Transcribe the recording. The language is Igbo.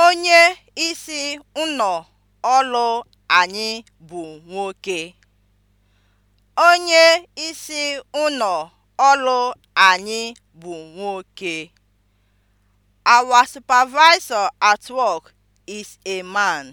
Onye isi ụnọ ọlụ anyị bụ nwoke. Onye isi ọlụ anyị bụ nwoke. Our supervisor at work is a man.